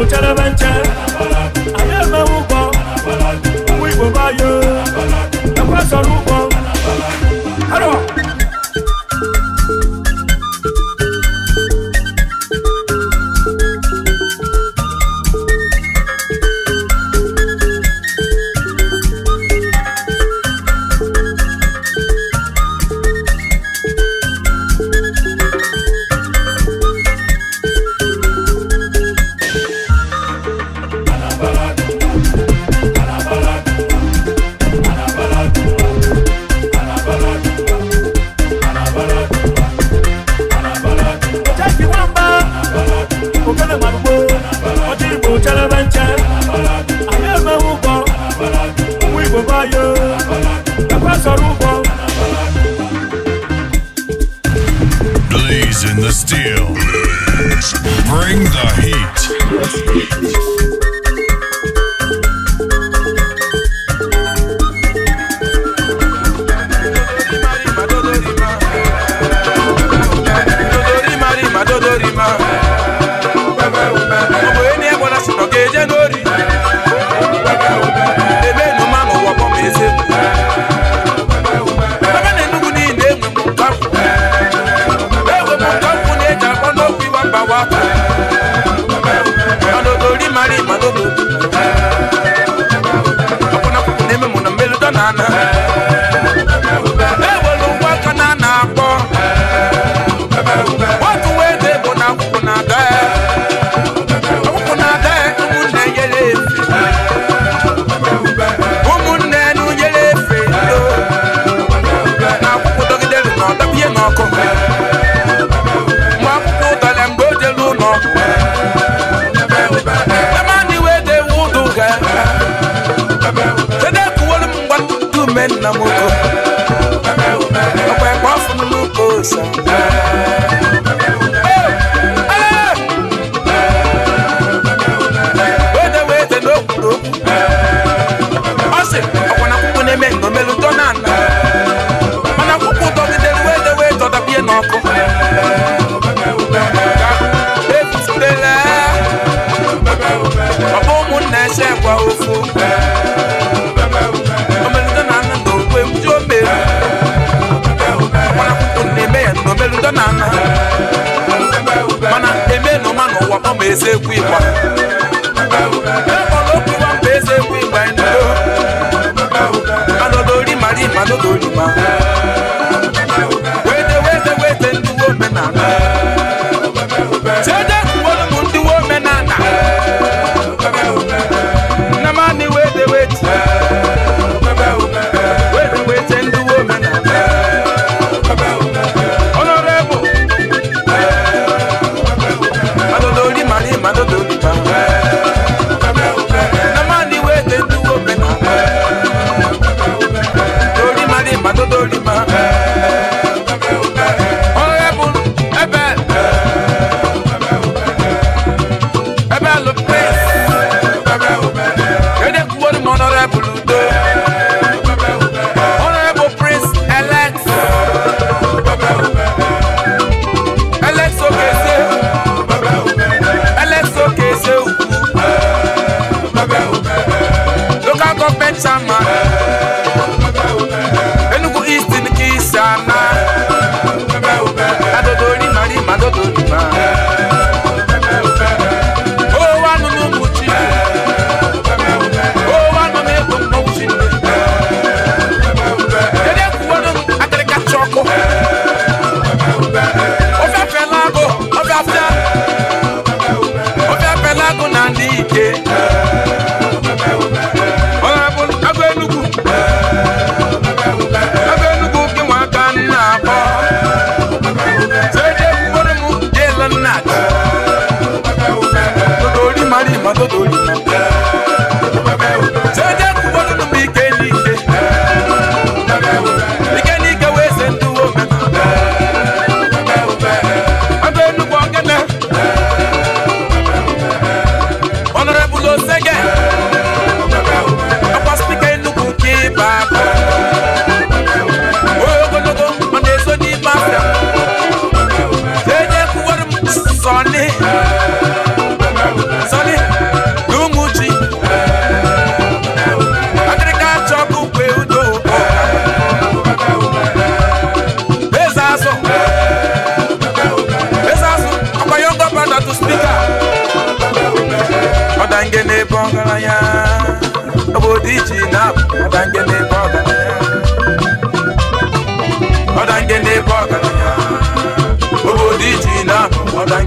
Ucharabancha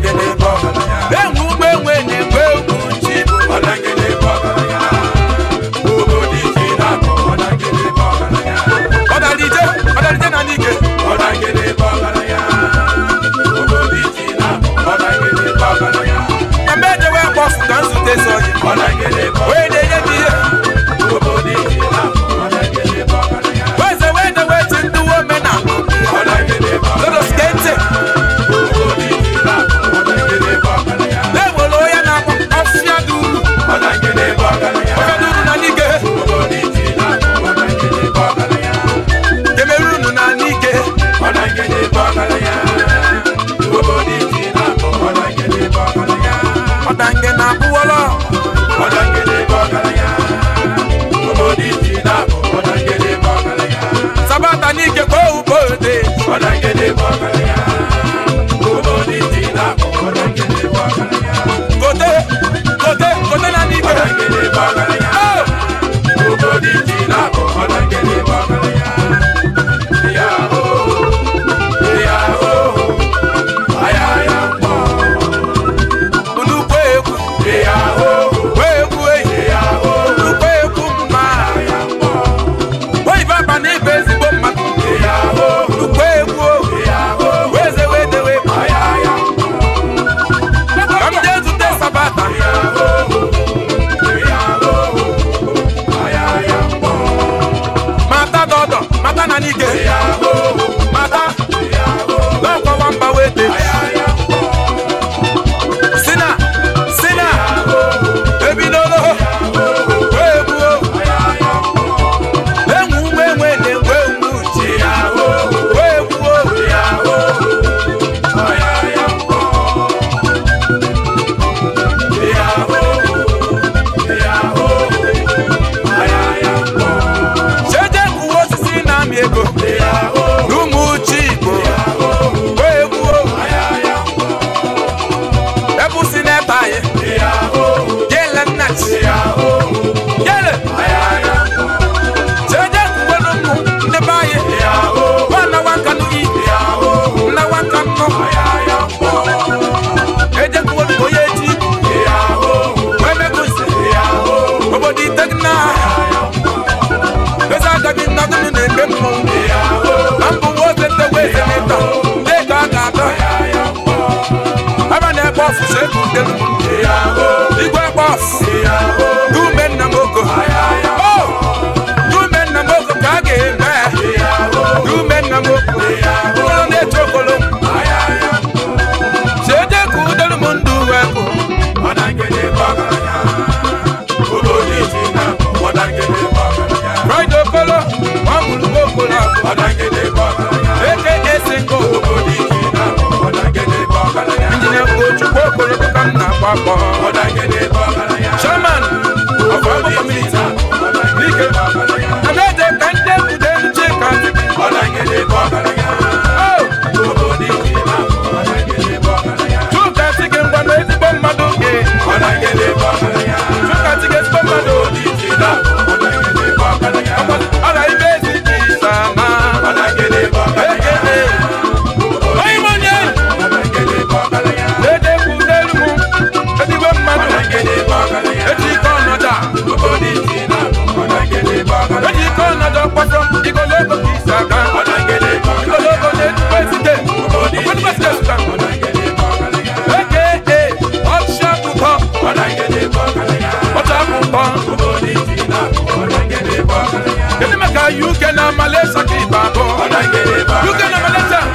Did You can amalesa kibabo. You can amalesa.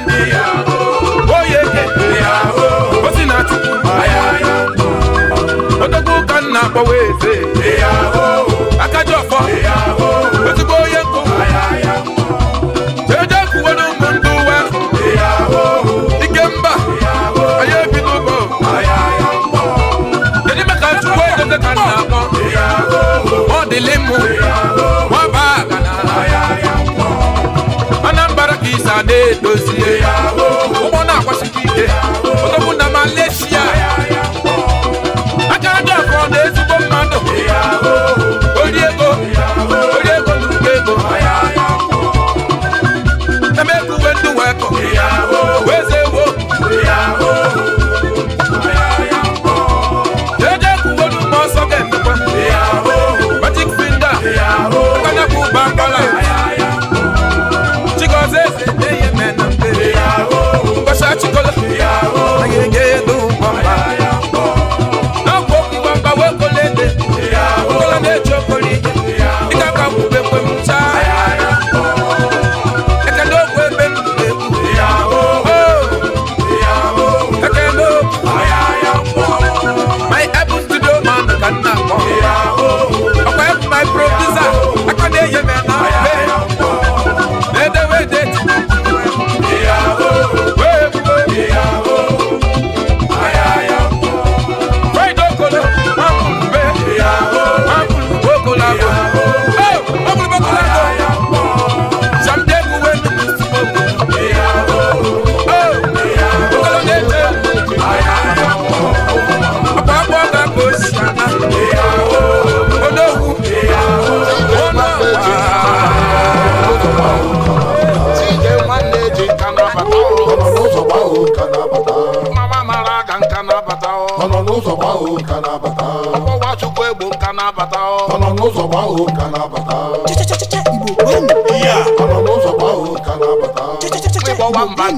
Oh oyeke osi na chukwu odogwu ka nna akpọwa eze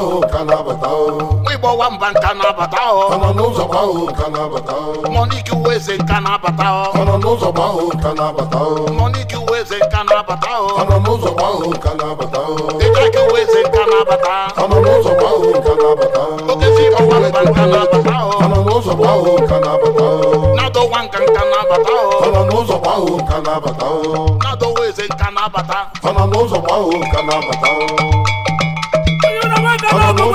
kwao kana batao wibo wa mba nkana batao kana n'ụzọ kwao kana batao mọniki weze nkana batao kana n'ụzọ kwao kana batao mọniki weze nkana batao kana n'ụzọ kwao kana batao ịkaki weze nkana batao kana n'ụzọ kwao nkana batao okezi ọwa mba nkana batao kana n'ụzọ kwao kana batao nado wan kan nkana batao kana n'ụzọ kwao nkana batao nado weze nkana bata kana n'ụzọ kwao nkana batao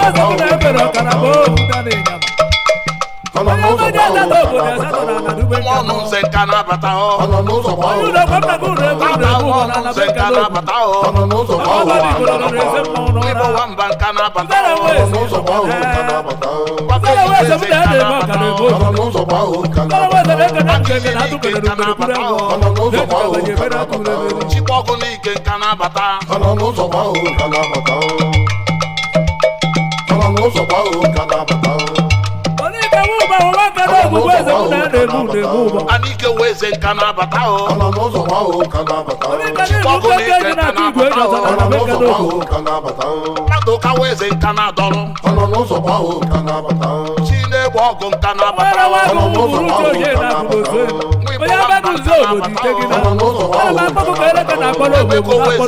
ọsọgụ na ebere ọkara bụ ofu dana ịnyama onye ọmọdé ẹ̀dá ma n'ụzọ na-abata Anike wee ze nka na n'ụzọ gbahụ ka na-abata nka na-abata o. na-abata na na ọgba ọgụ nta na-abatara na, abịa na, obodo na, gị na na, akpọkọ na, ereka na na, obodo na na, ọgụ na, ọgba na, steeti na na, ekele na atụpụrụ na, ọtọ na igboro na na na, ụlọ na,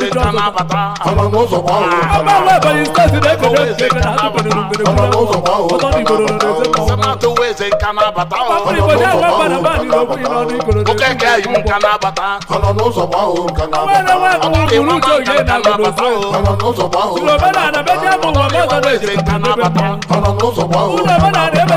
ebe na, amụ na, mmadụ na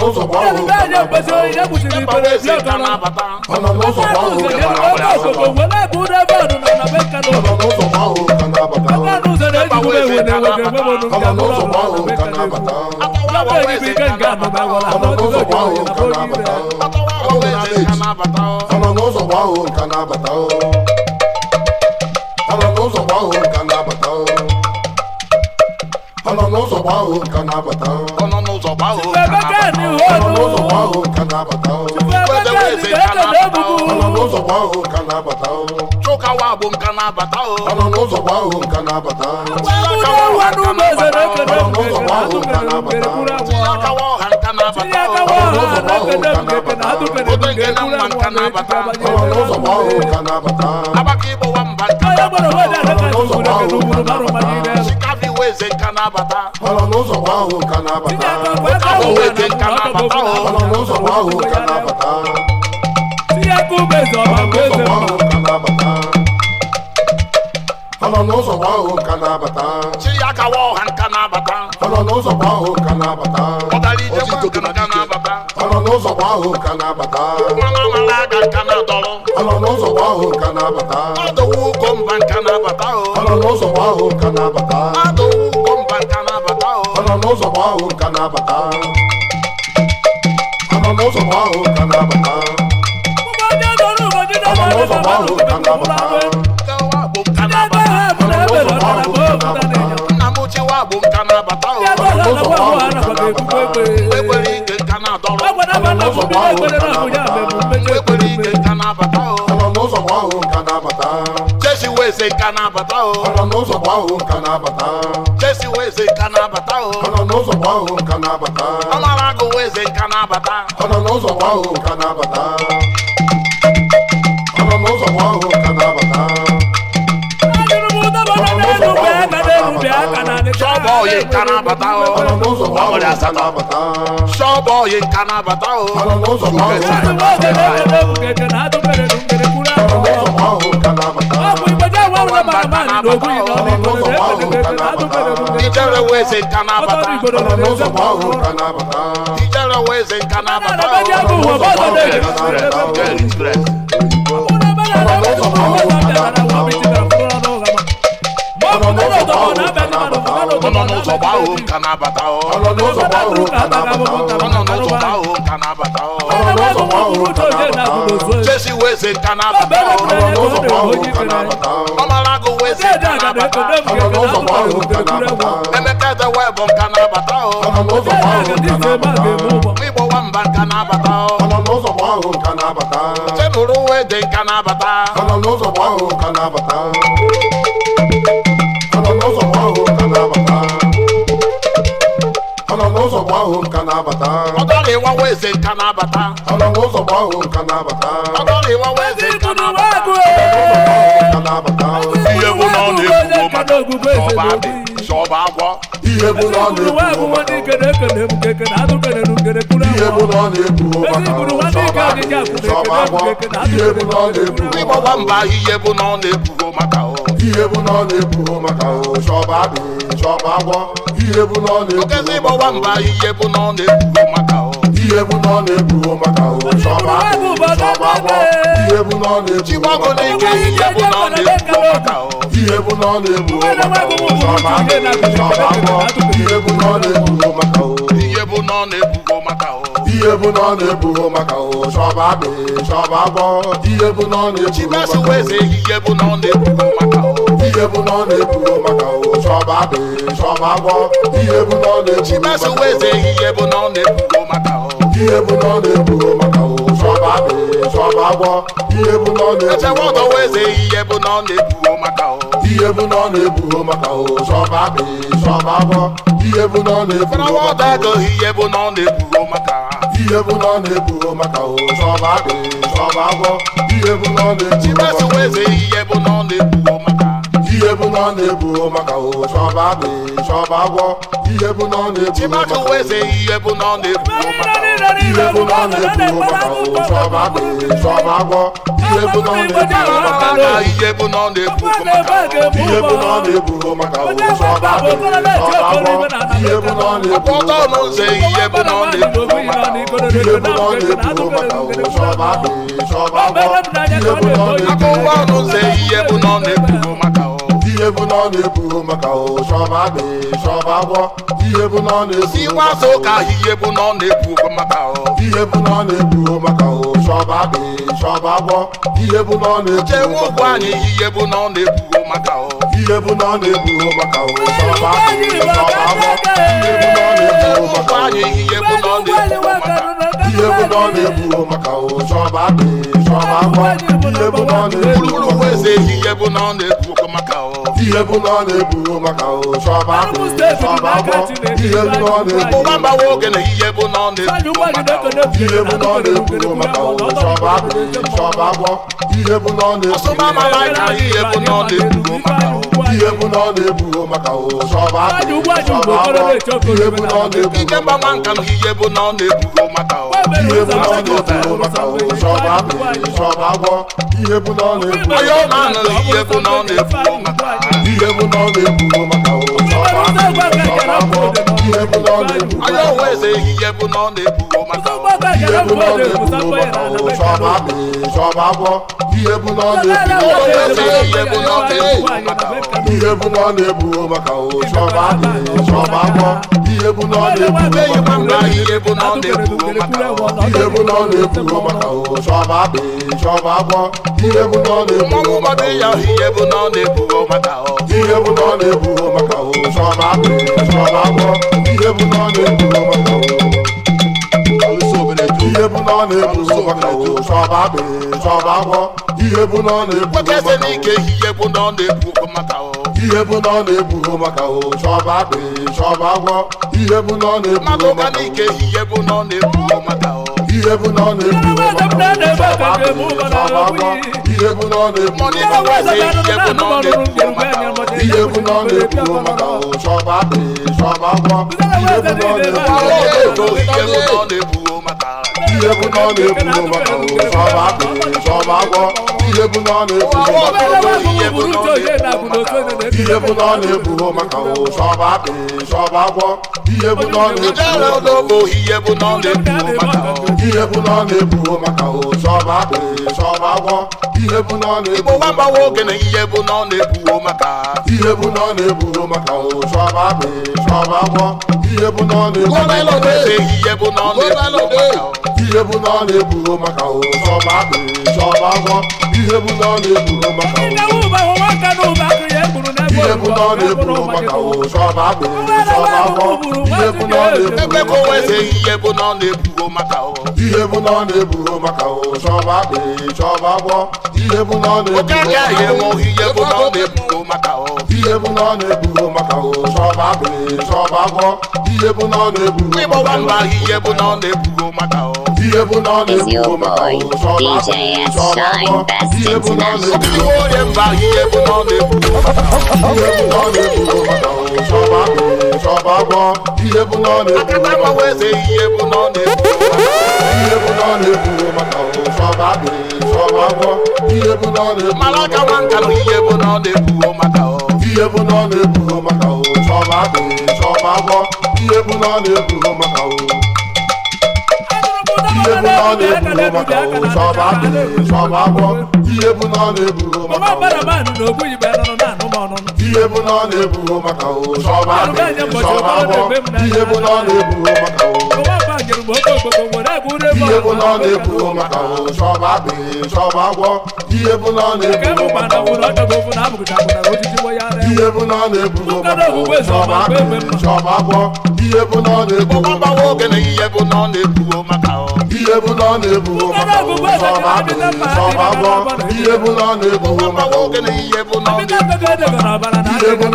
n'ụzọ na-abata. ọ nọ n'ụzọ gba ọ nọ n'ụzọ gba ka na-abata ọhụụ ka na-abata n'ụzọ gba ahụ ka na-abata chụkawa bụ nka na-abata ọnọ n'ụzọ gba ahụ nka na-abata n'ụzọ gba na-abata abaka ịgbọwa mba eke nka na ahụ na-abata ahụ na-abata ahụ na-abata chi ya kawa ọha nka na-abata ahụ ahụ na-abata ahụ mba nka ahụ na-abata n'ụzọ ma ahụ ka na-abata anọ n'ụzọ ahụ ka na-abata ahụ ka na-abata n'ụzọ ma ahụ ka na-abata na-abata na na-abata esi we eze nka na-abata o oh. ọ nọ n'ụzọ gwa ahụ nka na-abata ọ mara agụ we eze nka na-abata ọ nọ n'ụzọ na-abata ọ nọ n'ụzọ gwa ahụ nka na-abata nka na-abata o oh. ọmọdé asatọ sọ́ọ̀bù na-abata na oh. ọmọdé weze kana bata n'ụzọ gba ọhụrụ kana bata ijere weze kana bata n'ụzọ gba ọhụrụ kana bata n'ụzọ gba ọhụrụ kana bata ọnọ n'ụzọ gba ahụ m ka na-abata ọnọ n'ụzọ gba ahụ m ka na-abata ọnọ n'ụzọ gba ahụ m ka na-abata ọnọ n'ụzọ gba ahụ m ka na-abata jesi weze ka na-abata ọnọ n'ụzọ gba ahụ m ka na-abata ọmara emeka edewe bụ nka na-abata igbo nwamba nka na-abata nka na-abata ọdọrọ ịwa weze nka na-abata ọdọrọ ịwa weze nka na-abata ọ na-egbuwo mmadụ sọba adị sọba agwọ ihe bụ na ọ na-egbuwo mmadụ ihe bụ na ọ na-egbuwo mmadụ sọba agwọ ihe bụ na ọ na-egbuwo ịgbọgba mba ihe bụ na ọ na-egbuwo maka ọ ihe bụ na ọ na-egbuwo maka ọ sọba adị sọba agwọ ihe bụ na ọ na-egbuwo maka ọ ihe egwu na ọ na-ebuo maka ụwa chọma ihe egwu na ọ na-ebuo maka ihe na ọ na-ebuo maka ụwa ihe egwu na ọ na-ebuo maka ihe ọ maka ihe bụ na ọ na maka agbọ ihe bụ na ọ na maka ihe bụ na ọ maka ihe bụ na ọ maka ọ na maka ihe bụ na ọ na-ebu maka sọba dị sọba gwọ ihe bụ na ọ na-ebu echewa ọtọwa eze ihe bụ na ọ na-ebu maka ihe bụ na ọ na-ebu maka sọba dị sọba gwọ ihe bụ na ọ na-ebu maka ihe bụ na ọ na-ebu maka ihe bụ na ọ na-ebu maka sọba dị ihe bụ na ọ na-ebu maka ihe bụ na ọ na-ebu maka ihe bụ na ọ na-ebu maka ụwa chọba abị chọba ihe bụ na ọ na-ebu maka ihe bụ na ọ na-ebu maka ụwa chọba abị chọba ihe bụ na ọ na-ebu maka ihe bụ na ọ na maka agwọ ihe bụ na ọ na-ebu maka ihe bụ na ihe bụ na ọ na-ebu maka ụwa agwọ ihe bụ na ọ na-ebu maka bụ na ihe bụ na ọ na-ebu maka ụchọma bụ chọba agwọ ihe bụ na ọ na-ebu maka ụka ihe bụ na ọ na-ebu maka ihe bụ na ọ na-ebu maka ụchọba bụ chọba agwọ ihe bụ na ọ na-ebu chewe ụgwọ anyị ihe bụ na ọ na-ebu maka ihe bụ na ọ na-ebu maka ụchọba bụ chọba agwọ ihe bụ na ọ na-ebu maka anyị ihe bụ na ọ na-ebu maka ihe bụ na ọ na-ebu maka ụchọba bụ chọba agwọ ihe bụ na ọ na-ebu maka ụchọba bụ chọba agwọ ihe bụ na ọ na-ebu ihe bụ na ọ na-ebu maka shọba shọba agbọ ihe bụ na ọ na-ebu maka ihe bụ na ọ na-ebu maka o, shọba agbọ ihe bụ na ọ na-ebu maka ihe bụ na ọ na-ebu maka shọba akụ shọba ihe bụ na ọ na maka ihe bụ na ọ na-ebu maka ihe bụ na ọ na-ebu maka shọba akụ shọba agbọ ihe bụ na ọ na-ebu ihe bụ na ọ na-ebu ihe bụ na ọ na-ebu maka ihe bụ na ọ na-ebu anya onwe eze ihe bụ na ọ na-ebu maka ihe bụ na ọ na-ebu maka chọba chọba abụọ ihe ihe bụ na ọ na-ebu maka chọba chọba abụọ ihe nchọba akwọ ihe bụ na ọ maka ya ihe bụ ọ na-ebugo maka ihe bụ na ọ na-ebugo maka ihe bụ na ọ na-ebugo maka o chọba akpị chọba agwọ ihe bụ na ọ na-ebugo maka o ihe bụ na ọ na-ebugo maka o ihe bụ na ọ na-ebugo maka o chọba agwọ ihe bụ na ọ na-ebugo maka o ihe bụ na ọ na-ebugo maka o chọba akpị chọba agwọ ihe bụ na na-ebugo maka o iyebu náà na-ebu n'ụbaka o sọba akpụ sọba agwọ iyebu náà na-ebu n'ụbaka o iyebu náà na-ebu n'ụbaka o sọba akpụ sọba agwọ iyebu náà na-ebu iyebu náà na-ebu n'ụbaka o sọba akpụ sọba agwọ ihebu n'ọ na-ebu igbo wa mgbawa oge na ihebu n'ọ na-ebuwo maka ihebu n'ọ na-ebuwo maka ụsọba akpị sọba akwọ ihebu n'ọ na-ebu gọbalọde ihebu n'ọ na-ebuwo maka ihe bụ na ọ na maka ụzọba agwọ ihe bụ na ọ na eburu maka ihe bụ na ọ na-eburo maka ụzọba agwọ ihe bụ na ọ na maka ụzọ ma na ọ na agwọ ihe bụ na ọ na-eburo maka ihe bụ na ọ na-eburo maka ụzọba akpịrị agwọ ihe bụ na ọ na-eburo maka ụzọba agwọ ihe bụ na ọ na maka Even on the boom, DJ S. Shine Best International. Even on the boom, even on the boom, Shabba, even on the boom, even on the even on the Malaka one can even on the boom, even on the boom, Shabba, Shabba, even on the boom, ihe bụ na ọ na maka ụsọba sọba agwọ ihe bụ na ọ na-eburo maka ihe bụ na ọ na-eburo maka ụsọba sọba agwọ ihe bụ na ọ na-eburo maka ihe bụ na ọ na-eburo maka sọba agwọ ihe bụ na ọ na-eburo maka ihe bụ na ọ na maka ihe bụla ọ na-ebuo maka ụzọma agwọ ihe bụla ọ na-ebuo maka ihe bụla ọ na-ebuo maka ihe ọ na maka na maka ihe bụ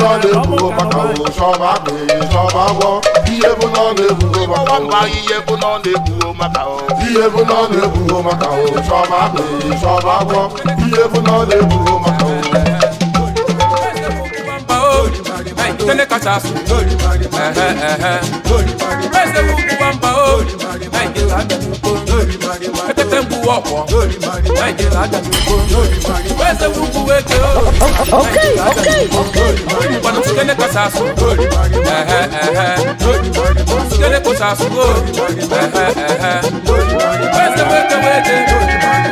na ọ na-ebuo maka tẹ́lẹ̀ kàtà sùn. Bẹ́sẹ̀ mú kú ń bá o, Nàìjíríà dàbí kó. Pẹ́pẹ́pẹ́ ń bu ọ̀pọ̀, Nàìjíríà dàbí kó. Bẹ́sẹ̀ mú kú o, Nàìjíríà dàbí kó. Ìbàdàn tún tẹ́lẹ̀ kàtà sùn. Tẹ́lẹ̀ kàtà sùn o, bẹ́sẹ̀ wéke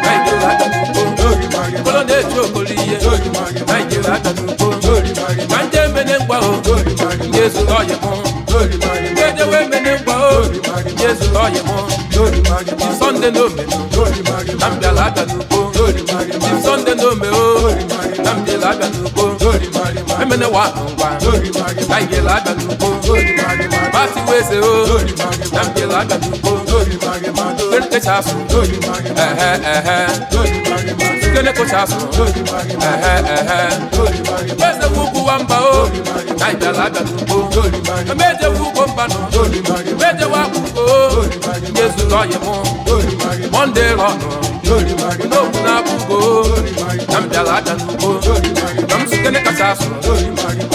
Nàìjíríà dàbí kó. Kọ́lọ́dé tí o kò rí iye, Nàìjíríà dàbí kó. Jésù lọ́yẹ̀ mọ́. Dédé wé mi ní gbọ́ ó. Jésù lọ́yẹ̀ mọ́. Di Sunday no me no. Nnamdi Alaabia n'ugbo. Di Sunday no me o. Nnamdi Alaabia n'ugbo. Emene wa anụ ngwa. Taịga Alaabia n'ugbo. Mati Weze o. Nnamdi Eh eh eh afọ. Ehe ehe. kele kò ṣàfùrọ̀. Mẹ́sẹ̀ fúkú wa ń bá o, náìjà lájà tó kó. Méje fúkú ń bá nù, méje wá kú o. Jésù lọ yẹ mú, Mọ́ndé rọ̀nù. N'okwu na akụkọ, na m bịara aja n'ugbo, na m site n'ịkacha asụ,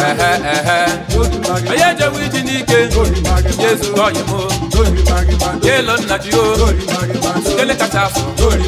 ehe ehe. Onye ejewe iji n'ike, Jesu ọyị m, Jelo nna ji o, site n'ịkacha asụ,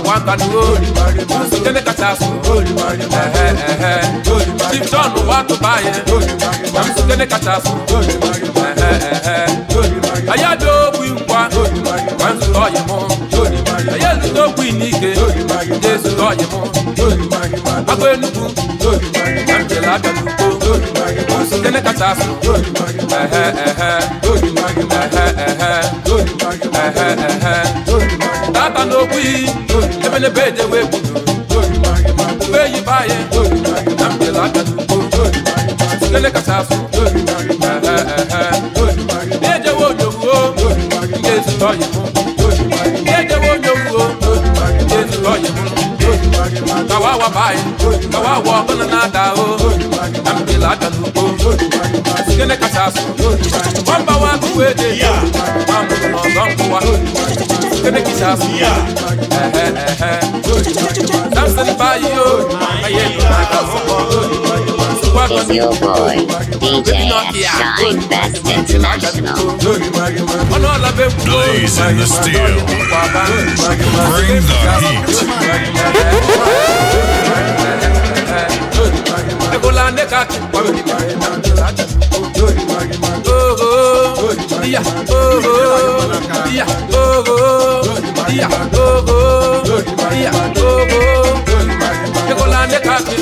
wàwáńtà ní rórì jẹ́lẹ̀ kàtà sùn chief john wà tó báyẹn mamisu jẹ́lẹ̀ kàtà sùn ayé ló wí wá mamisu tọ́ yẹ mọ́ ayé ló tó wí ní ike jésù tọ́ yẹ mọ́ agbo enugu mamisu lábẹ́ gbogbo jẹ́lẹ̀ kàtà sùn ẹ̀hẹ́ ẹ̀hẹ́ ẹ̀hẹ́ ẹ̀hẹ́ ẹ̀hẹ́ nwata n'okwu iyi ebelebe ejewe ebudo ube yi baye na mbele aka sitele kacha afụ ejewe onyowuo ga-ezute ọyị ejewe onyowuo ga-ezute ọyị kawawa baye kawawa ọbụla na-ada ahụ na mbele aka n'ugbo sitele kacha afụ ọ mbawa akụwa eje ya ma mụrụ n'ọzọ nkụwa gonna kiss I'm standing by your boy, DJ Shine Best International. Blaze in the steel. Bring the heat. oh oh, oh oh, oh oh, oh oh. iya ogo iya ogo iya ogo iya ogo jẹkọlá ní káfí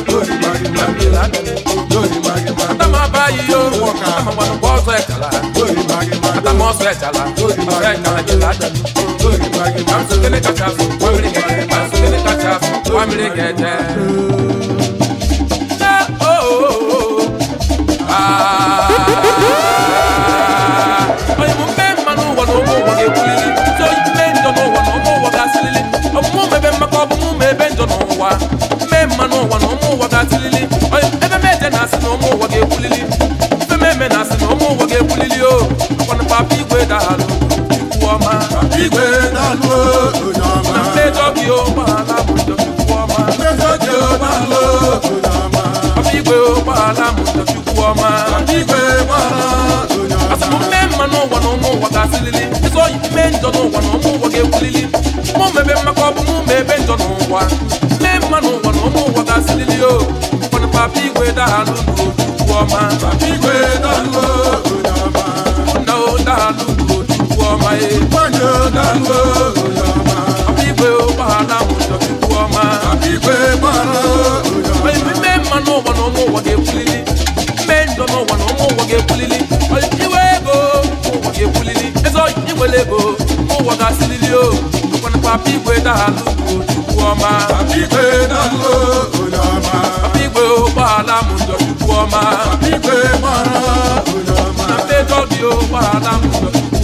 lẹ́mìlá àtàmà báyìí yóò wọ̀ ká àmàmà ní bọ́ọ̀sọ̀ ẹ̀jàlá àtàmà ọ̀sọ̀ ẹ̀jàlá ọ̀sọ̀ ẹ̀jàlá jẹlá jẹ. Kamsu kele kacha fu, wamiri kete, kamsu kele kacha fu, wamiri kete. Ah. dalụ ikwu ọma igwe dalụ onye ọma na mmejọ gị ụgbọala bụ ndochukwu ọma mmejọ gị ụgbọala onye ọma ọba igwe ụgbọala bụ ndochukwu ọma igwe ụgbọala asịmụ mmee mma n'ụwa na ụmụ ụwa ga-asịlili ịzọ ime njọ n'ụwa na ụmụ ụwa ga-ewulili mụ mebe mmaka ọ bụ mụ mebe njọ n'ụwa mmee mma n'ụwa na ụmụ ụwa ga-asịlili o ụfọdụ papa igwe dalụ n'otu ọma papa igwe dalụ wáyé. Pọ́njọ dánwó òyàmá. Àbígbé ó bá aláwọ̀ ìjọba ikú ọmọ. Àbígbé bọ́lá òyàmá. Bẹ́ẹ̀ni bẹ́ẹ̀ mọ náà wọ̀ náà mọ̀ wọ̀ gé kulili. Bẹ́ẹ̀ ń dọ̀nà wọ̀ náà mọ̀ wọ̀ gé kulili. Ìwé ego mọ̀ wọ̀ gé kulili. Ẹ̀sọ́ ìwélé ego mọ̀ wọ̀ gá sílílí o. Ìkọ́ni pàbí ìwé dàlú òdùkú ọmọ. Àbígbé dánwó òyàmá. Àbígbé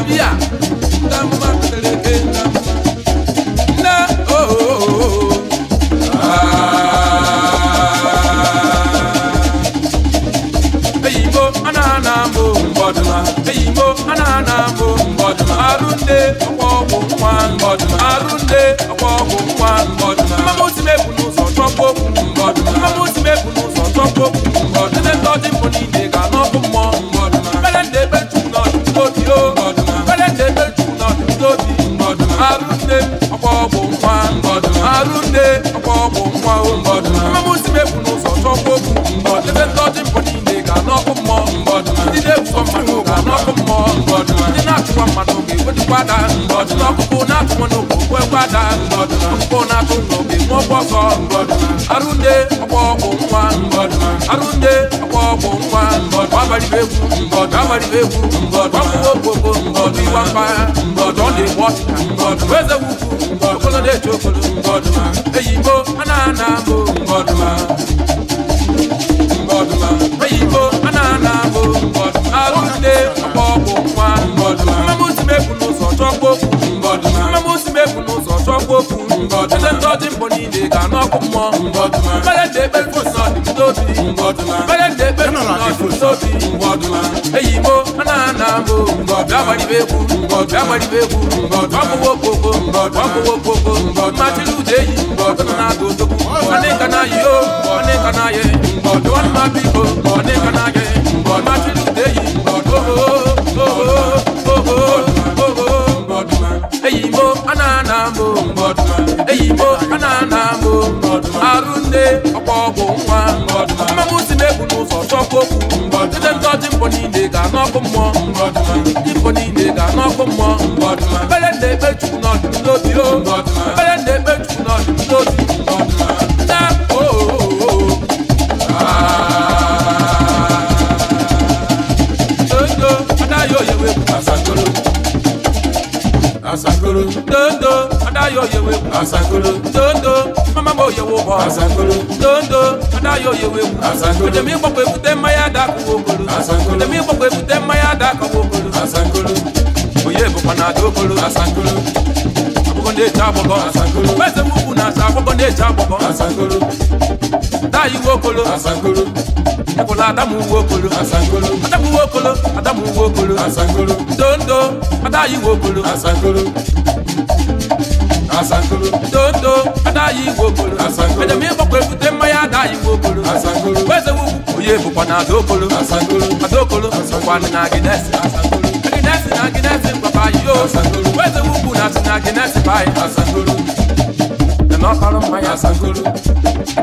de nweriegwu ọwụwokpoko ọdụ iwa mpaghara ọdụ ọ na-egbu ọchịcha eze wukwu okolo na-eche okolo eyigbo anaghị ana abụ eyigbo anaghị ana abụ arụgide ọkpọọkpụ nwa mmamụsi mebu n'ụzọ chọkwa okwu mmamụsi mebu n'ụzọ chọkwa okwu eze ndị ọjị mbọ niile ga-anụ ọkụ mmụọ mmadụ na-ekpe mposi dọ́gbọ̀dì bẹ́ẹ̀ kú mbọ̀ dọ́gbọ̀dì bẹ́ẹ̀ kú mbọ̀ dọ́gbọ̀wọ́ koko mbọ̀ dọ́gbọ̀wọ́ koko mbọ̀ matilu deyi mbọ̀ tọ́nà tó kana yìí ó kana yẹ mbọ̀ dọ́nà bí ma ko mɔ mbɛlɛ ne be tugu nɔ dulo di o mbɛlɛ ne be tugu nɔ dulo di na o. dondo ada yoo yewe asakolo asakolo dondo ada yoo yewe asakolo dondo mama mo yewo bɔ asakolo dondo ada yoo yewe asakolo jẹmi gbɔgbɔ ekute maya da kowo kolo jẹmi gbɔgbɔ ekute maya da kowo kolo asakolo ndị bụkwa na aja okporo asangolo abụkọ ndị eji agbọkọ asangolo eze mụkwụ na aja agbọkọ ndị eji agbọkọ asangolo tayi uwe okolo asangolo ekwela adamu uwe okolo asangolo adamu uwe okolo adamu uwe okolo asangolo ndo ndo adayi uwe okolo asangolo asangolo tonto adayi igbo okolo asangolo ejemi gbọkwa ebute mmanya adayi igbo okolo asangolo weze wugwu onye bụkwa na adaokolo asangolo adaokolo na Guinness papa yo Asanguru Weze wubu na si na Guinness pai Asanguru Nana palo maya Asanguru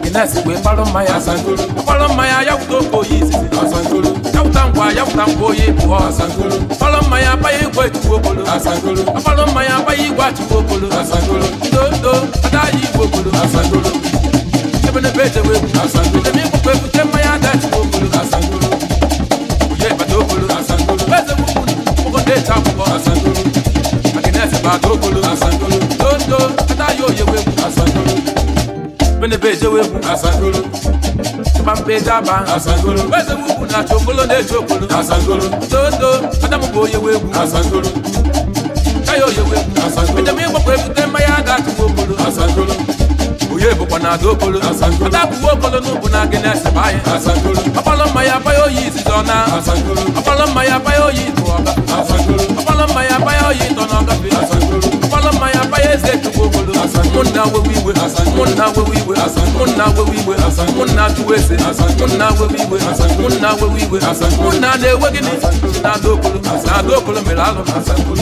Guinness we palo maya Asanguru Palo maya yawuto koyi sisi Asanguru Yawuta nkwa yawuta nkoyi buo Asanguru Palo maya paye igwe tuwokolo Asanguru Palo maya paye igwa tuwokolo Asanguru Ndo ndo adayi igwokolo Asanguru Ebene beje we Asanguru Emi kukwe kute maya agogolo asangolo tondo atayo yewegu asangolo benebe ejewegu asangolo pampejaba asangolo bezemugu na chokolo ne chokolo asangolo tondo adamugo yewegu asangolo tayo yewegu asangolo ejemi gbogbo ebute mmanya ga atụgbogolo asangolo bụ na aga okporo ata bụgbu okporo n'ụbụ na gị na-esebe anyị ọkpọrọ mmanya abaya oyi izizo na ọkpọrọ mmanya abaya oyi bụ ọga ọkpọrọ mmanya abaya oyi ịtọ na ọgafe ọkpọrọ mmanya abaya eze chukwu obodo mụnna wewe iwe mụnna wewe iwe mụnna wewe iwe mụnna chụwa eze mụnna wewe iwe mụnna wewe iwe mụnna na-ewe gịnị na-ada okporo na-ada okporo mere alụ na asankolo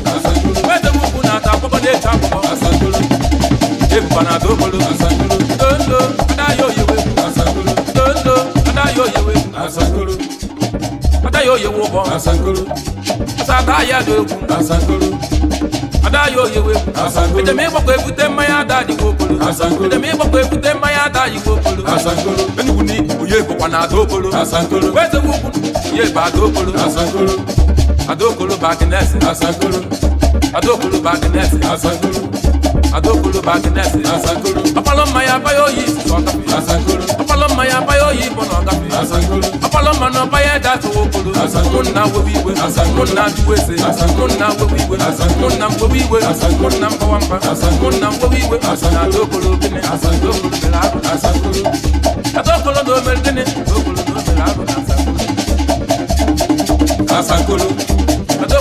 ebana tó bolo asakoro dondo adayo yewe asakoro dondo adayo yewe asakoro adayo yewo bọ asakoro sata yado egwu asakoro adayo yewe asakoro ejem ịgbakọ ebute mmanya ada dịgbo okporo asakoro ejem ịgbakọ ebute mmanya ada dịgbo okporo asakoro enugwu na oyi egbokwa na ada okporo asakoro wezegwu ukwu ya ebe ada okporo asakoro ada okporo bagnes asakoro ada okporo bagnes asakoro adókòló bá ti nẹ́ẹ̀sì asakoro ọpọlọmọ ya báyọ̀ yìí sísọ káfí asakoro ọpọlọmọ ya báyọ̀ yìí bọ̀nà káfí asakoro ọpọlọmọ náà báyẹ̀ dá sowó koro asakoro múnà wéwí ìwé asakoro múnà bíwé se asakoro múnà wéwí ìwé asakoro múnà wéwí ìwé asakoro múnà mbọwamba asakoro múnà wéwí ìwé asakoro adókòló bíní asakoro bíní asakoro adókòló dòmẹ́rẹ́ bíní adókòló dòmẹ́rẹ́ asakoro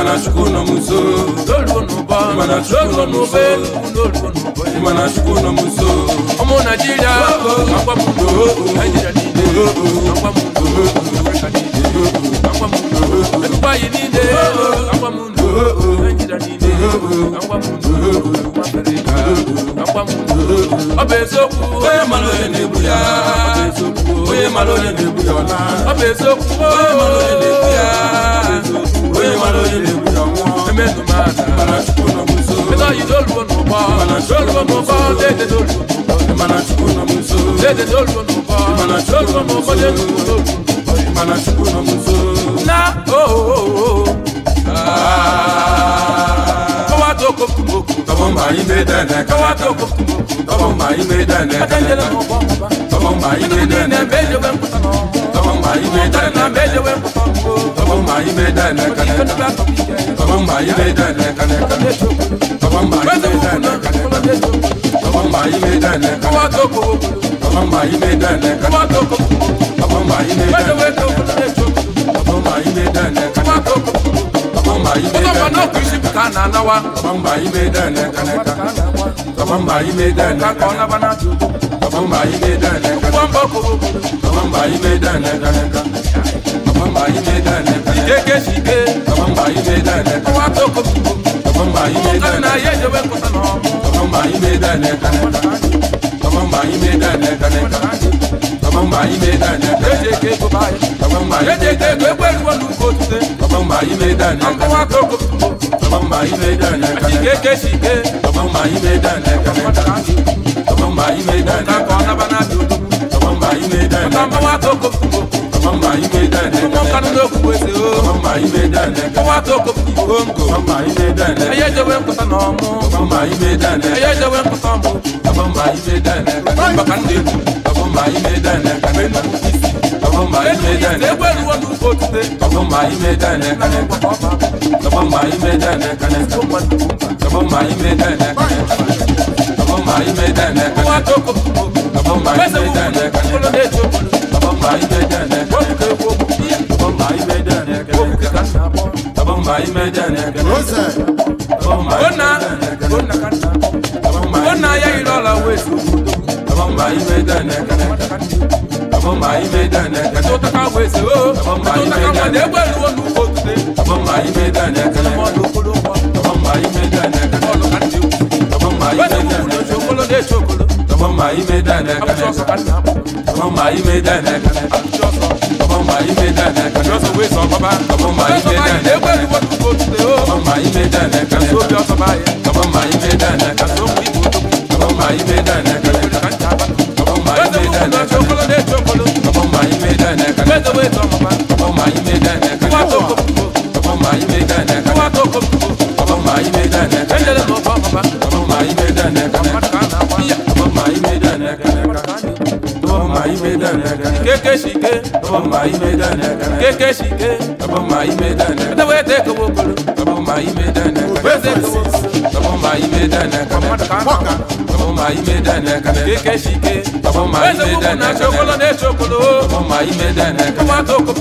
imanashukuna muzuru lolunuba imanashukuna lolunuba imanashukuna muzuru omu najira nangwa mundu najira ninde nangwa mundu afrika ninde nangwa mundu dubai ninde nangwa mundu najira ninde nangwa mundu afrika nangwa mundu obezoku oye malole nebuya obezoku oye malole nebuya ona obezoku oye malole nebuya obezoku Onye mara onye na-egbu ya nwụọ Eme ndụ ma ada Mana Chukwu nọ m nso Ego yi doluo n'ụba Mana doluo n'ụba Dede doluo n'ụba Mana Chukwu nọ m nso Dede doluo n'ụba Mana doluo n'ụba Dede doluo n'ụba Mana Chukwu nọ m nso Na ooo Kawa toko kumoko Tọmọ mma anyị mee dene Kawa toko kumoko Tọmọ mma anyị mee dene Atẹnjẹlẹ mọ bọ mọ ba Tọmọ mma anyị mee dene Ebe ejogbe nkwụta n'ọrụ mayi bɛ da na tɔmɔ mayi bɛ da na kanɛ kan tɔmɔ mayi bɛ da na kanɛ kan tɔmɔ mayi bɛ da na kanɛ kan tɔmɔ mayi bɛ da na kanɛ kan tɔmɔ mayi bɛ da na kanɛ kan tɔmɔ mayi bɛ da na kanɛ kan tɔmɔ mayi bɛ da na kanɛ kan tɔmɔ mayi bɛ da na kanɛ kan tɔmɔ mayi bɛ da na kanɛ kan tɔmɔ mayi bɛ da na kanɛ kan. Mamba yi me da ne ka. Mamba ko. Mamba yi me da ne ka ne ka. Mamba yi me da ne ka. Ije ke si ke. Mamba yi me da ne ka. Wa to ko si ko. Mamba yi me mamba ime dade kaka ona bana dudu mamba ime dade mamba wa to ko ko mamba ime dade ko kanu do ku ese o mamba ime dade ko wa to ko ko ko mamba ime dade aye je wen ko ta no mo mamba ime dade aye je wen ko ta mo mamba ime dade mamba kan de mamba ime dade kamen na kisi mamba ime dade e gberu wo du ko tude mamba ime dade kanen ko mamba mamba ime wa toko pesa ukolo decho bamba imedane wokuke woku bamba imedane wokuke kasa bamba imedane rosa bamba ona ona kasa bamba ona ya ilola wesu bamba imedane bamba imedane katota ka wesu bamba imedane belu onu kotude bamba imedane kana modu kolo bamba imedane kono kanti bamba imedane ole chokolo. Tọmọmọ yìí mi dá nẹ́ka nẹ́ka. Tọmọmọ yìí mi dá nẹ́ka nẹ́ka. Tọmọmọ yìí mi dá nẹ́ka nẹ́ka. Tọmọmọ yìí mi dá nẹ́ka nẹ́ka. Tọmọmọ yìí mi dá nẹ́ka nẹ́ka. Tọmọmọ yìí mi dá nẹ́ka nẹ́ka. Tọmọmọ yìí mi dá nẹ́ka nẹ́ka. Tọmọmọ yìí mi dá nẹ́ka nẹ́ka. Tọmọmọ yìí mi dá nẹ́ka nẹ́ka. keke shike abon mai me da ne kana keke shike abon mai me da ne da we te ko bolo abon mai me da ne kana we te ko abon mai me da ne kana abon mai me da ne kana keke shike abon mai me da ne kana chokolo ne chokolo abon mai me da ne kana to ko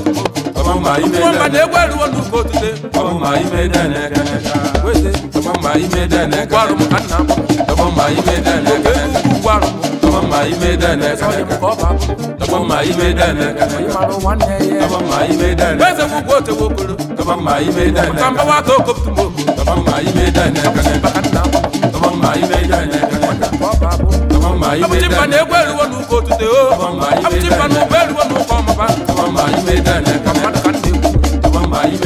abon mai me da ne kana de gwaru wonu ko tude abon mai me da ne kana we te abon mai me da kana gwaru mu anna abon mai me da ne kana gwaru abon mai me da ne kana ko ba kama ma ibe dana kama ma ibe dana bese mu gote wokolo kama ma ibe dana kama wa to kop tu mo kama ma ibe dana kama bakana kama ma ibe dana kama ma ibe dana abuti pa ne gwelu wonu ko tute o oh. abuti pa no gwelu wonu ko ma ba kama ma ibe dana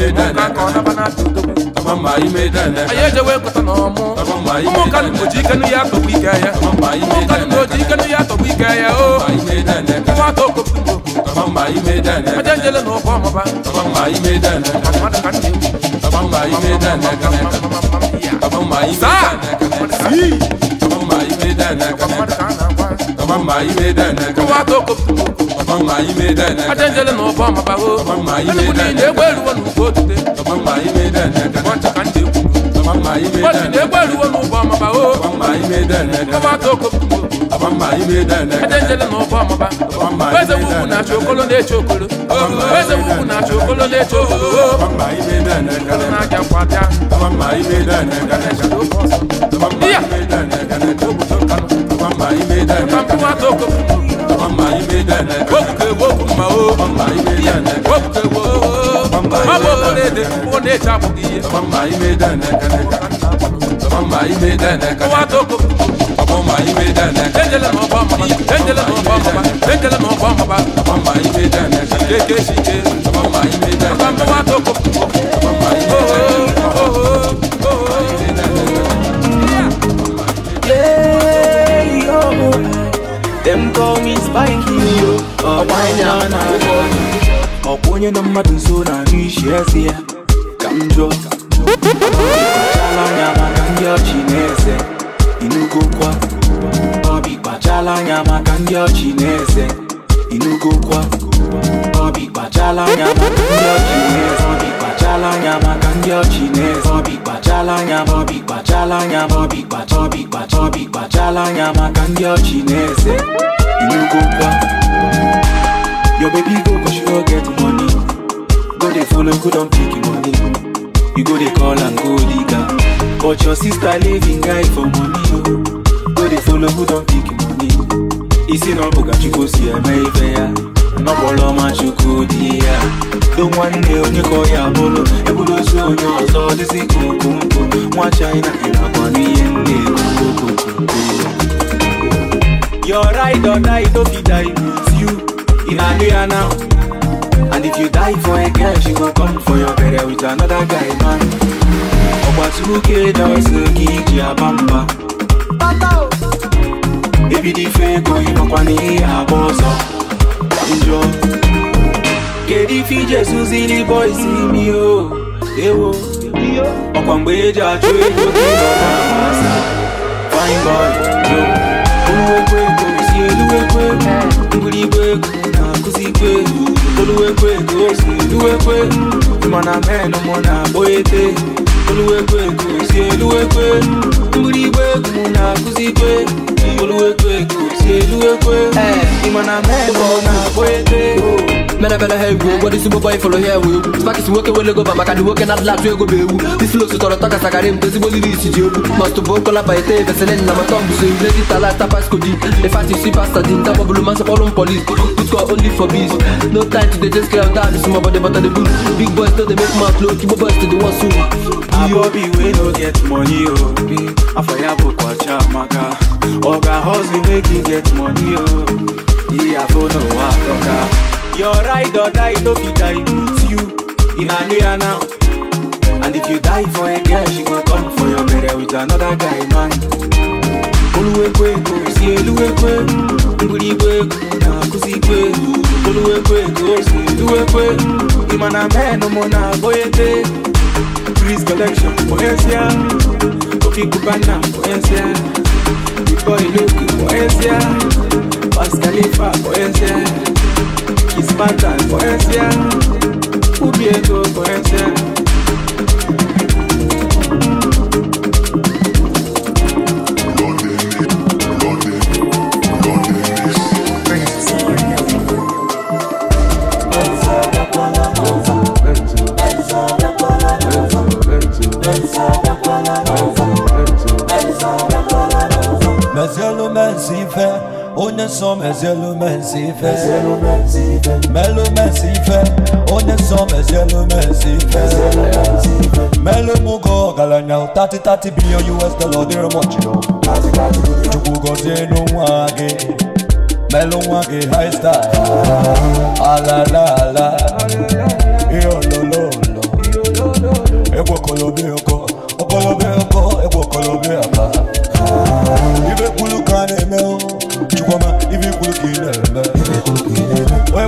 mụka ka ọ naba n'aka anyị ejewe nkọta na ọmụ ụmụnkanụ na-oji ikenu ya atọgbu ike ya ụmụnkanụ na-oji ikenu ya atọgbu ike ya o nwa atọ okpokpo ajenjele na ụkọ ọmụba mmadụ ka nna ewu saa mmadụ ka a na-akọ mama yi me dene ko wa to ko mama yi no bo mama mama yi me dene ni egbe ru wonu mama yi me dene ka mama mama no bo mama mama yi me dene wo na chokolo de chokolo weze wo na chokolo mama mama mama toko mama ibe dene wokuke woku ma o mama ibe dene wokuke wo mama ibe dene wo ne chapu iye mama ibe dene kene mama ibe dene kene wa toko mama ibe dene dendele mo ba mama dendele mo ba mama dendele mo ba mama mama ibe dene kene keke shike mama ibe dene wa toko ọkwụnye na mmadụ nso na ahụ isi eze ya ka m jụọ anya maka ndị ọchị na-eze inugokwa ọbi kpachala anya maka ndị ọchị na-eze e no go kwa obi kpachala anya maka ndị ọchịnez obi kpachala anya maka ndị ọchịnez obi kpachala anya obi kpachala anya obi kpacha obi kpacha obi kpachala anya maka ndị ọchịneze e no go kwa your baby go cause she no get money go dey follow go don pick money you go dey call am go digger but your sister leaving guy for money oh. o go dey follow go don pick money isi na ọ chukwu si eme ife ya n'ọkpọrọ ọma chukwu dị ya do nwanne onye ka ya bụrụ eburu ozu onye ọzọ dịzi ka okompo nwa china ịnakwa n'ihe ndị Your ride or die, don't be die with you in Nigeria now. And if you die for a girl, she go come for your burial with another guy, man. Ọgbatuke dọsụ gị ji aba mba. Pata ibidi feko inokwa n'ihe agba ọzọ njọ kedu ife iji esuzili bọisi mi o ewo ọkwa mgbe eji achụ ego gịnọasa fine boy jo oluwekwe ego si eluwekwe mgbirigwe ego na-akụzikwe oluwekwe ego si eluwekwe ịmana men mụ na-agba ete oluwekwe egosi eluwekwe mgbiri igwe egwu mụ na-akụzikwe oluwekwe egosi eh. eluwekwe ịmana men mụ na-agba ete mena bela ha egwu ụgwọdụ isi gbogbo ifụrụ ha enwe egwu spakisi nwoke wele goba maka dị nwoke na-adịla atụ ego bụ egwu disilosu tọrọ tọ kasakarị m tezigbo liri isi ji egwu mọstụ bụ okola baite ebeselin na matọ mbụso iledi talata pasko di efasisi pasta di nta gbọbụlụ masị kpọrụ m polis tutkọ only for biz no time to dey just clear down small body but on the bull big boys no dey make mouth flow. igbo boys dey dey wan soon. abobi wey no get money o oh, afọ ya bụ oh, kwacha maka ọga hustle make e get money o. Oh. Iyafo no Africa. Your ride or die no be dilute you in Nigeria now. And if you die for a girl, she go come for your burial with another guy man. Oluwekweko si eluwekwe, ngwurikweko na nkuzikweko. Oluwekweko si eluwekwe, ịmana men ụmụ na-agboyete. Trees collection for Asia, Ofi Kubana for Asia, Before Iloku for Asia. baskalifa koyesye ispatan koyesye ubieto koyesye Mas eu não me onye nsọ m ezielu m nsi ife melu m nsi ife onye nsọ m ezielu melu m ọgaranya 30-30 billion US dollar dịrị m ọchịrị chukwu gọzie n'onwe gị melu nwa gị high style alala ala ihe ololo olo egwu okolobi ọkọ okolobi ọkọ egwu okolobi aka ibe kwulu ka na-eme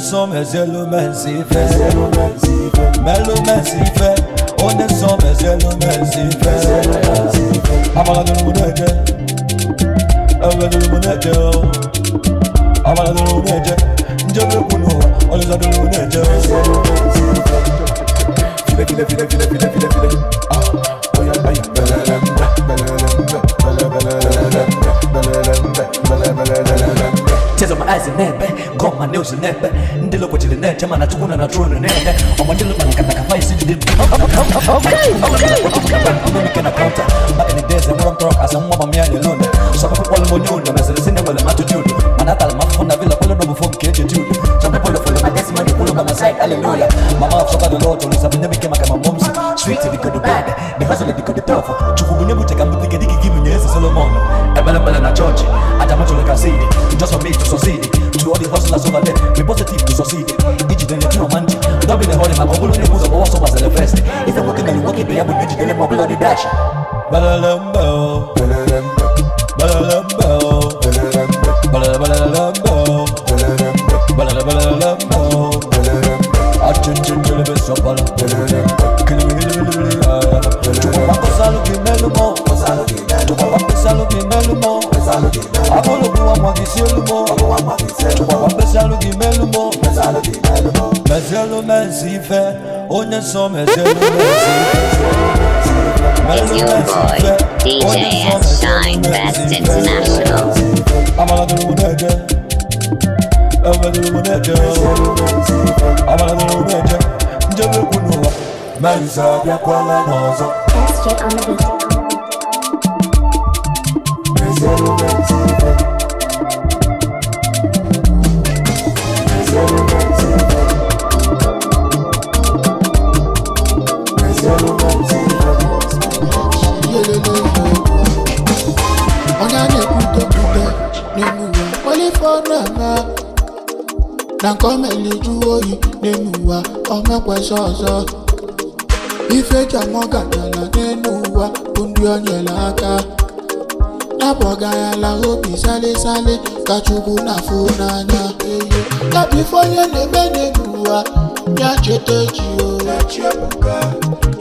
son mes éléments s'y fait Mais le main s'y fait On est sans mes éléments de Moudede I'm do ẹ̀rọ ẹ̀jẹ̀ o àwọn ẹ̀rọ ẹ̀jẹ̀ njẹ́ mẹ́kun nù ọ̀lẹ́sàdọ̀rọ̀ ẹ̀jẹ̀ o. filẹ̀filẹ̀filẹ̀filẹ̀filẹ̀filẹ̀. Cause my eyes in nepe, got my nails in nepe Ndilo kwa chile nete, mana tukuna na tuwe nene Oma ndilo mana kata kafai sindi dimu Okay, okay, okay Mimi kena counter, mbaka ni deze Mura mtoro asa mwa mamia ni lune Shapa kwa wale monyuni, mesele sine wale matu juni Manata la mafuna vila kule nobu fomu keje juni Chamba pole pole magesi mani kulu kama side, hallelujah Mama afsoka do loto, nisa binemi kema kama momsi Sweet, niko do bad, ni hustle, niko do tough It's your boy, DJ oh, Shine Best International. on the beat. ọzọ ọzọ ife eji amụ n'elu ụwa bụ ndị o nyere aka Na-abọghị abọgayala obi sale sale ka Chukwu na-afụ n'anya ya bụ ife onye na-eme n'elu ụwa ya cheta echi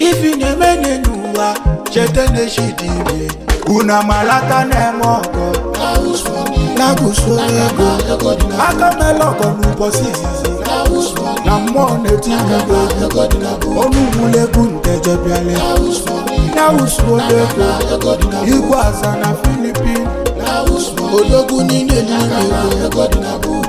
ife na-eme n'elu ụwa cheta n'echi dị ire unu amalata na-eme ọgọ na-agụsụ ego aka mela ọgọ n'ụbọchị izizi na mmụọ na-eti anya gị ọnụ ugwulegwu nke jebiale nausudego na filipin ológun nílé ní ìlú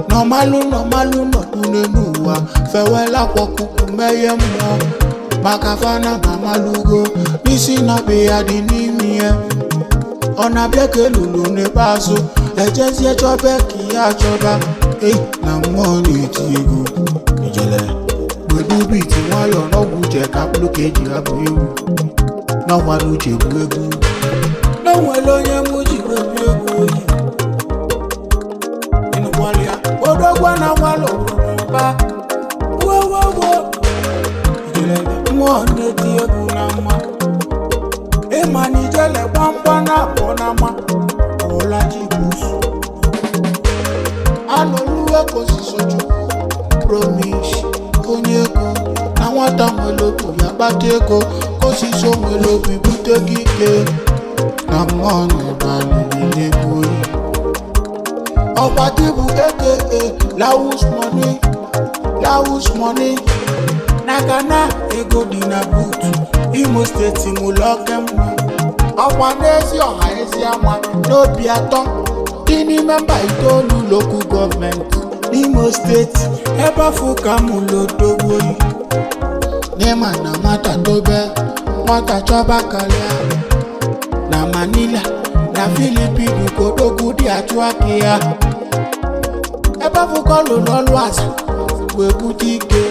Normalu, normalu, no kunenua Fewela kwa kukumeye mwa Makafana mamalugo Nisi na biyadi nimie Ona bieke lulu ne bazo Ejezi echobe ki achoba Eh, na mwoni tigo Nijele Gbegbu bi ti wọn yọ nọgbu jẹ kápúlù kejì abúlé wù. Náà wọn lu jèbú egwu. Náà wọn lóyún mú papa. Whoa, whoa, whoa. Ijele mwone tie kunama. Ema nijele pamba na na ma, ponama. Ola jibusu. Aloluwa kò sí sójú. Promise konyeko. Na nwata mwelobu ya bateko. Kò sí so mwelobu bute gike. Na mwone bani nile kuri. Ọba dìbò aka lawus money dawus money na ghana ego di na boot. imo steeti mu oke mma ọkwa n'ezi ọha ezi ama n'obi atọ dị itolu mba itoolu Imo gọọmenti n'imo steeti mu afọ ka mụlụ odogboyi n'ịma na nwata dobe nwata chọba karịa na manila na filipinu ka odogwu dị atụ aka ya ebe afọ ka ọlụrụ igwe na ike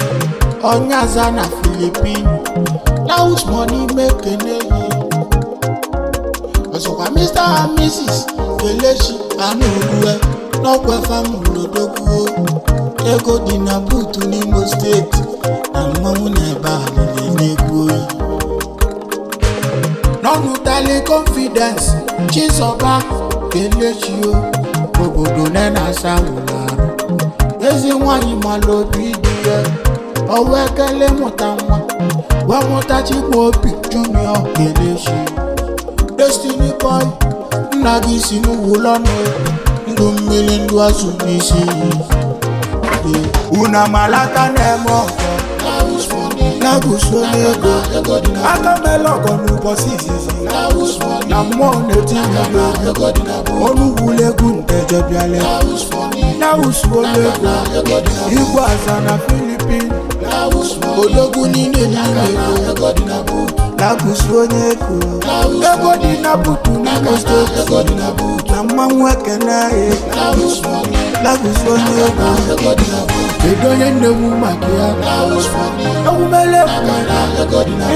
onye aza na filipino money make eneyi ọzọkwa mr and mrs kelechi anụrue n'ọkwefa m lodogwuo ego dị na buutu n'imo steeti na mmọnwụ na ebe a lere n'egwu oyi n'ọnụ tali confidence chizoba kelechio obodo ne na-asa wụlarụ ezi nwanyị mara obi dị ya ọwa ekele mụta nwa gwa mụtachi junior kelechi destiny boy nagi gị si n'ụlọ nụ ndụ mmiri ndụ azụ Lagos on Lagos. Atamelo konu kosisi. Na mo neti na. Oluwu legun teje bi ale. Lagos on Igbo asa na Philippines. Ológun ní Nàìjíríà. Lagos on Lagos. Lagos di na butu na kosto. ekene. Lagos on edoye ndewu makia ewumele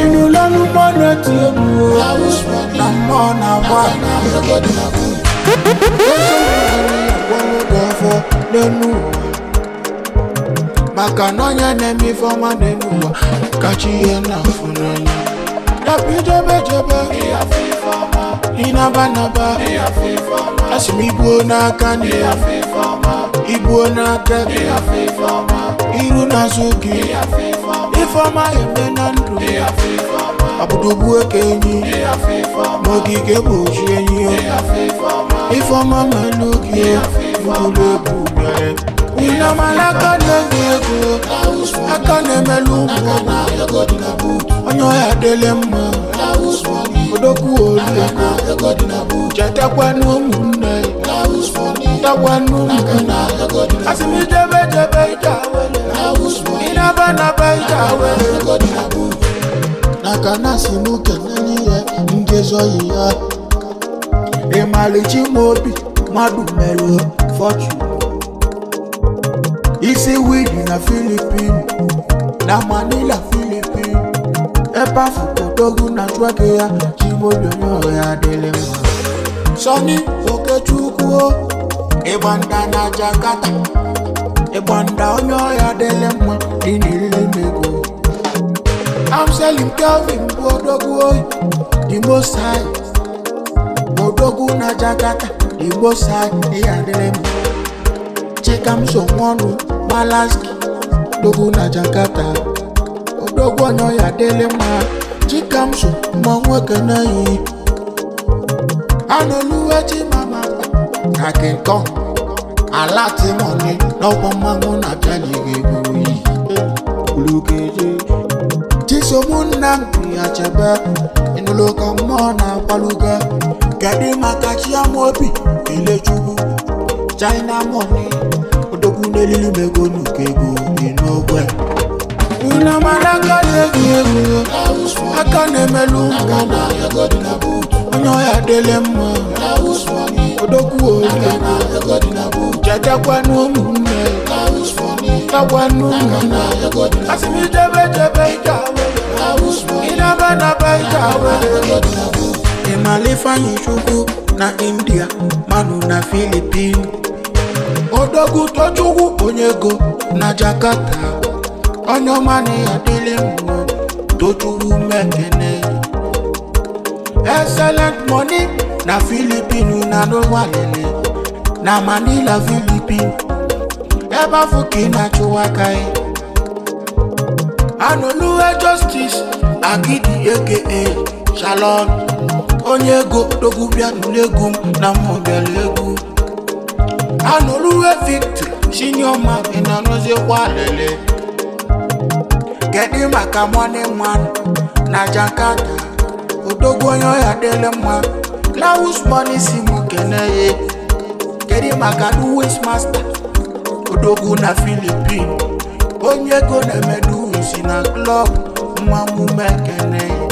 inu lọnu mọna ti ebu o na mọ na wa. lẹ́nu maka n'ọnya na-eme ife ọma n'elu ụwa kacha ihe na-afụ n'anya dabi jebejebe ịnabanaba asị m igbuo n'aka n'ihe Igbo na-aga iru na-azụ gị ifeọma eme na ndụ abụdụbu eke enyi ma ogige bụ oji enyi ifeọma ma n'oge ụlọ ebu bịara Unyamalaka nengego Aka nemelu mwogo Onyo ya dele mwa Odoku olu Chata kwa numune Tawa numune Asimi jebe jebe itawele Inaba naba itawele Nakana simuke naniye Ngezo iya Emalichi mobi Madu melu Fortune Isiwidi na Philippine na Manila Philippine ebe afụodogu na juake ya jibeonyonyo ya dịrị mma Sunny Okechukwu ebanda na Jakarta ebanda onye ya dịrị mma dị n'iriri mego I'm selling Kelvin bụ odogwu the most high odogwu na Jakarta the most high ya dịrị mma Chikamso Nwọnụ palace dogo na Jakarta odogwu ọnọ ya dịlị mma chikamso ma nwoke na yi anụluwe chimama na kinkọ ala timoni n'ọgbọ mmanwụ na bịanyere buru iyi ulugeje chisomunna mpi achebe ịnụlụ ka mmụọ na-agbaluga kedu maka chiamobi elechukwu china money egwu n'elili m ego nnukwu ego dị n'ogwe unu mara aka na-egwu egwu aka na-emelụ onye ọya dịle mma odokwu oge chetakwanụ ụmụnne takwanụ ụmụnne asị m ijebe jebe ike ịnaba naba ike awere ịmalifanyi chukwu na india manu na Philippines odogwu tochukwu onye na Jakarta onye ọma na ya mekene excellent money na Filipinu na n'ụwalele na Manila Filipin eba afọ ka ị na-achụwa aka ya anụluwe justice agidi aka shalom Onyego Dogu dogwu bịa na mmụbịara egwu anoluwe victory chinyoma inanozikwa lele kedu maka mone nwan na jakarta odogwu onye ọhịa dịle mma lawus money si m kene ya kedu maka duwis masta odogwu na filipin onye ego na-emeduwisi na klọb nwa mume kene ya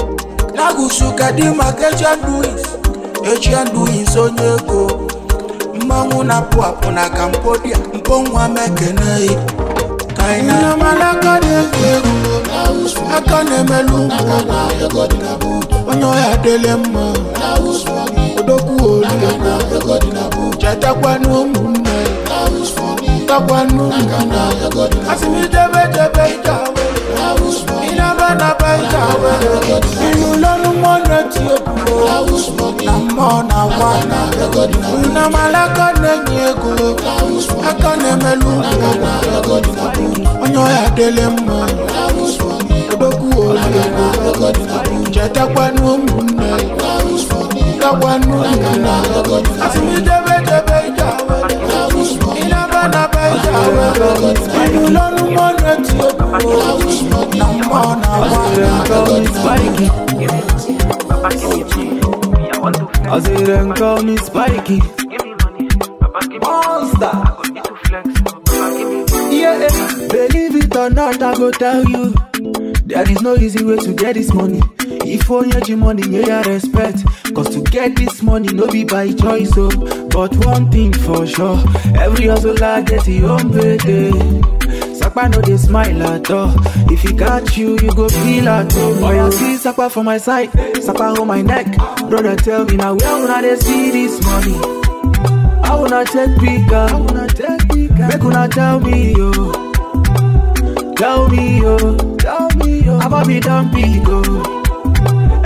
lagusu kedu maka ejian duwis ejian duwis onye ego mmanwụ na-apụ apụ na kampodia mponwa mekenei kainamalakadị egwu egwu aka na-emelu mgbo onye ya dele mma odokwu olu chetakwanụ ụmụnne takwanụ ụmụnne asị m idebe idebe ije awere ịnaba naba ije hundred yo buo amọ na wa una malaka nenyi ego aka na-emelu onye ya dele mma odogwu olego chetakwanụ ụmụnne takwanụ ụmụnna asị m idebe idebe ike awere na beja wero Inu lolu mone ti obo I wish money more na one I see call me spiky Monster Yeah, believe it or not, I go tell you There is no easy way to get this money if only the money, you I respect. Cause to get this money, no be by choice, oh. But one thing for sure, every hustler get his own payday. Sakpa no dey smile at all. If he got you, you go feel at all. Oh, you see Sakpa for my side, Sakpa on my neck. Brother, tell me now, where una dey see this money? I wanna take bigger. I wanna take bigger. Make una tell me, yo. Oh. Tell me, yo. Oh. Tell me, yo. Oh. Abba be done big, oh.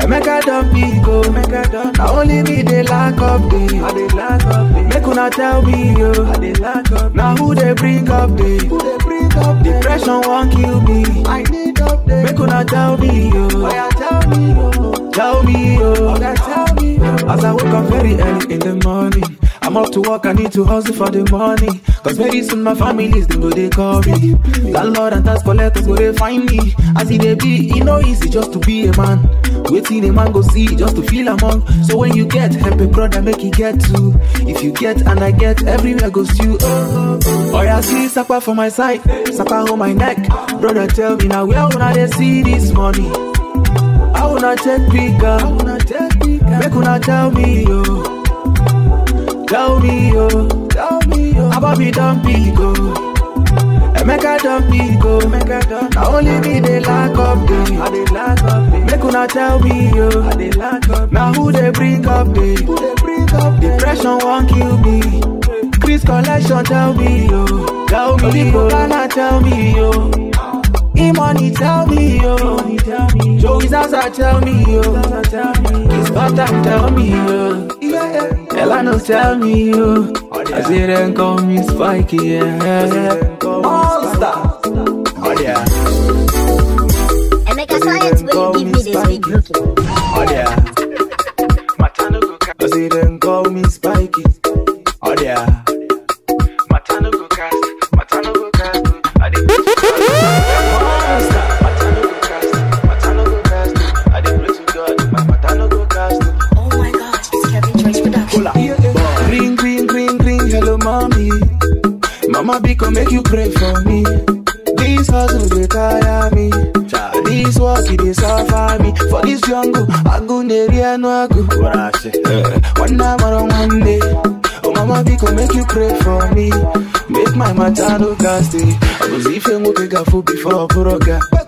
Make I don't be go. make I don't. Now only me they lack up dey. I they lack up dey. Make una tell me yo. I they lack up. Now who they bring up dey? Who they bring up dey? Depression not kill me. I need up update. Make una tell me yo. I oh, tell me yo. Tell me yo. Oga oh, tell me yo. As I wake up very early in the morning. I'm up to work, I need to hustle for the money. Cause very soon my family's they go they call me. Lord and tax collectors go they find me. As it they be, it no easy just to be a man. Waiting a man go see just to feel among. So when you get help a brother, make it get to. If you get and I get, everywhere goes you. Oh I see supper for my side, supper on my neck. Brother tell me now where when I see this money. I wanna take bigger, make wanna tell me yo. Gaudi, yo. Gaudi, yo. Abobi don big, go. don't be go. Emeka don. Now only me they lack of me I they lack of Me Make una tell me, yo. I they lack of day. Now who they bring up me? Who they bring up day? Depression won't kill me. Chris collection tell me, yo. Tell me, yo. Tell me, yo. E-money tell me, yo. Joe Zaza tell me, yo. His butter tell me, oh, yo. Elano tell me, yo. I see them call me Spikey, oh, yeah. All star. Oh, yeah. Emeka Science, will you give me this week looking? Oh, yeah. I see them call me Spikey. Abi come make you pray for me. This hustle they tire me. This work they suffer me. For this jungle, I go near no I go. One I or one Monday. Oh mama, be come make you pray for me. Make my matter look I go see if you move before I put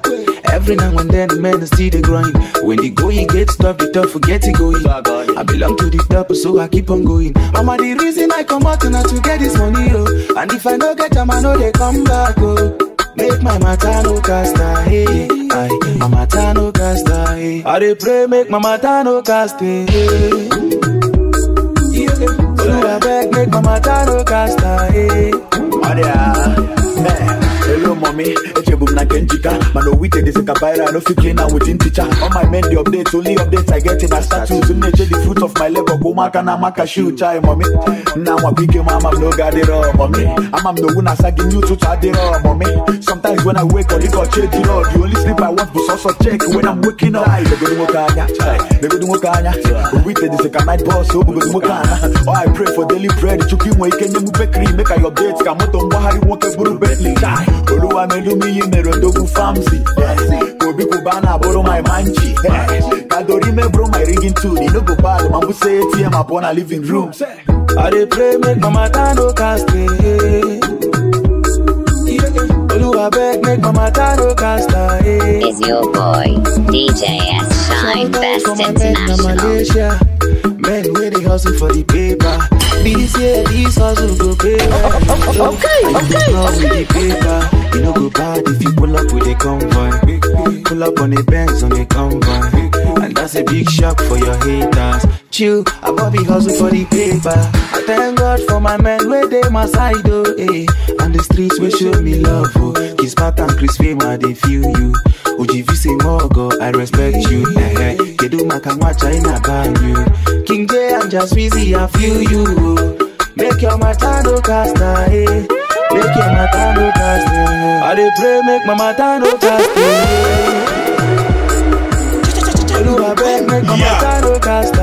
Every now and then, man, I see the grind. When the going gets tough, the tough forget it going. I belong to the top, so I keep on going. Mama, the reason I come out now to get this money, oh. And if I don't get them, I know they come back, oh. Make my matano no cast hey, I, my matano no cast hey. I dey pray make my matano no cast hey. Yeah. So I beg make my matano no cast hey. Oh yeah, man. mommy echebu m na nke njika mana owite dịzịka viral no fit clean am within teacher all my men dey update only updates i get in na status m na the fruit of my labor Go mark bụ ụmụaka na-ama kashiu chai mommy nna nwakwa ike m ama m n'oge adịrọ mommy ama m na owu you to gị it adịrọ mommy sometimes when i wake up, ọ change it ejiro the only sleep i want bụ sọsọ check when i'm waking up legodo nwoke anya legodo nwoke anya owite a night boss. bus oh, obugodo nwoke ana oh i pray for daily bread chukwu inwe ike make m bekri make i update ka moto mgbagharị nwoke bụrụ bentley Oluwa melumi imero dogu famsi Kobi kubana boro my manchi Kadori bro my rigging tune You no go bad man who say ATM upon a living room I dey pray make mama tano cast away Oluwa beg make mama tano cast away Is your boy DJ S Shine Best International Men wey dey hustle for the paper This year, this hustle go pay. okay, okay. okay. You know go bad if you pull up with a convoy. Pull up on a Benz on a convoy. And that's a big shock for your haters. Chill, I Bobby hustle for the paper. I thank God for my men where they my side, oh, eh. And the streets will show me love, oh. Kiss Pat and Chris Fema, they feel you. Ojivi say Mogo, I respect you. Eh, eh. Kedu Makamwacha in a you. King J, I'm Just busy, I feel you. Oh. Make your matado casta, eh. Make your mata no cast eh. I dey pray, make my mata no cast eh. Oluwa beg, make my mata no cast eh.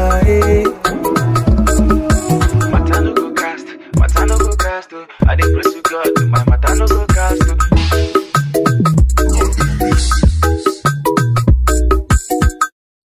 Matter no go cast, matter no go cast oh. I dey praise to God, my matter no go cast oh.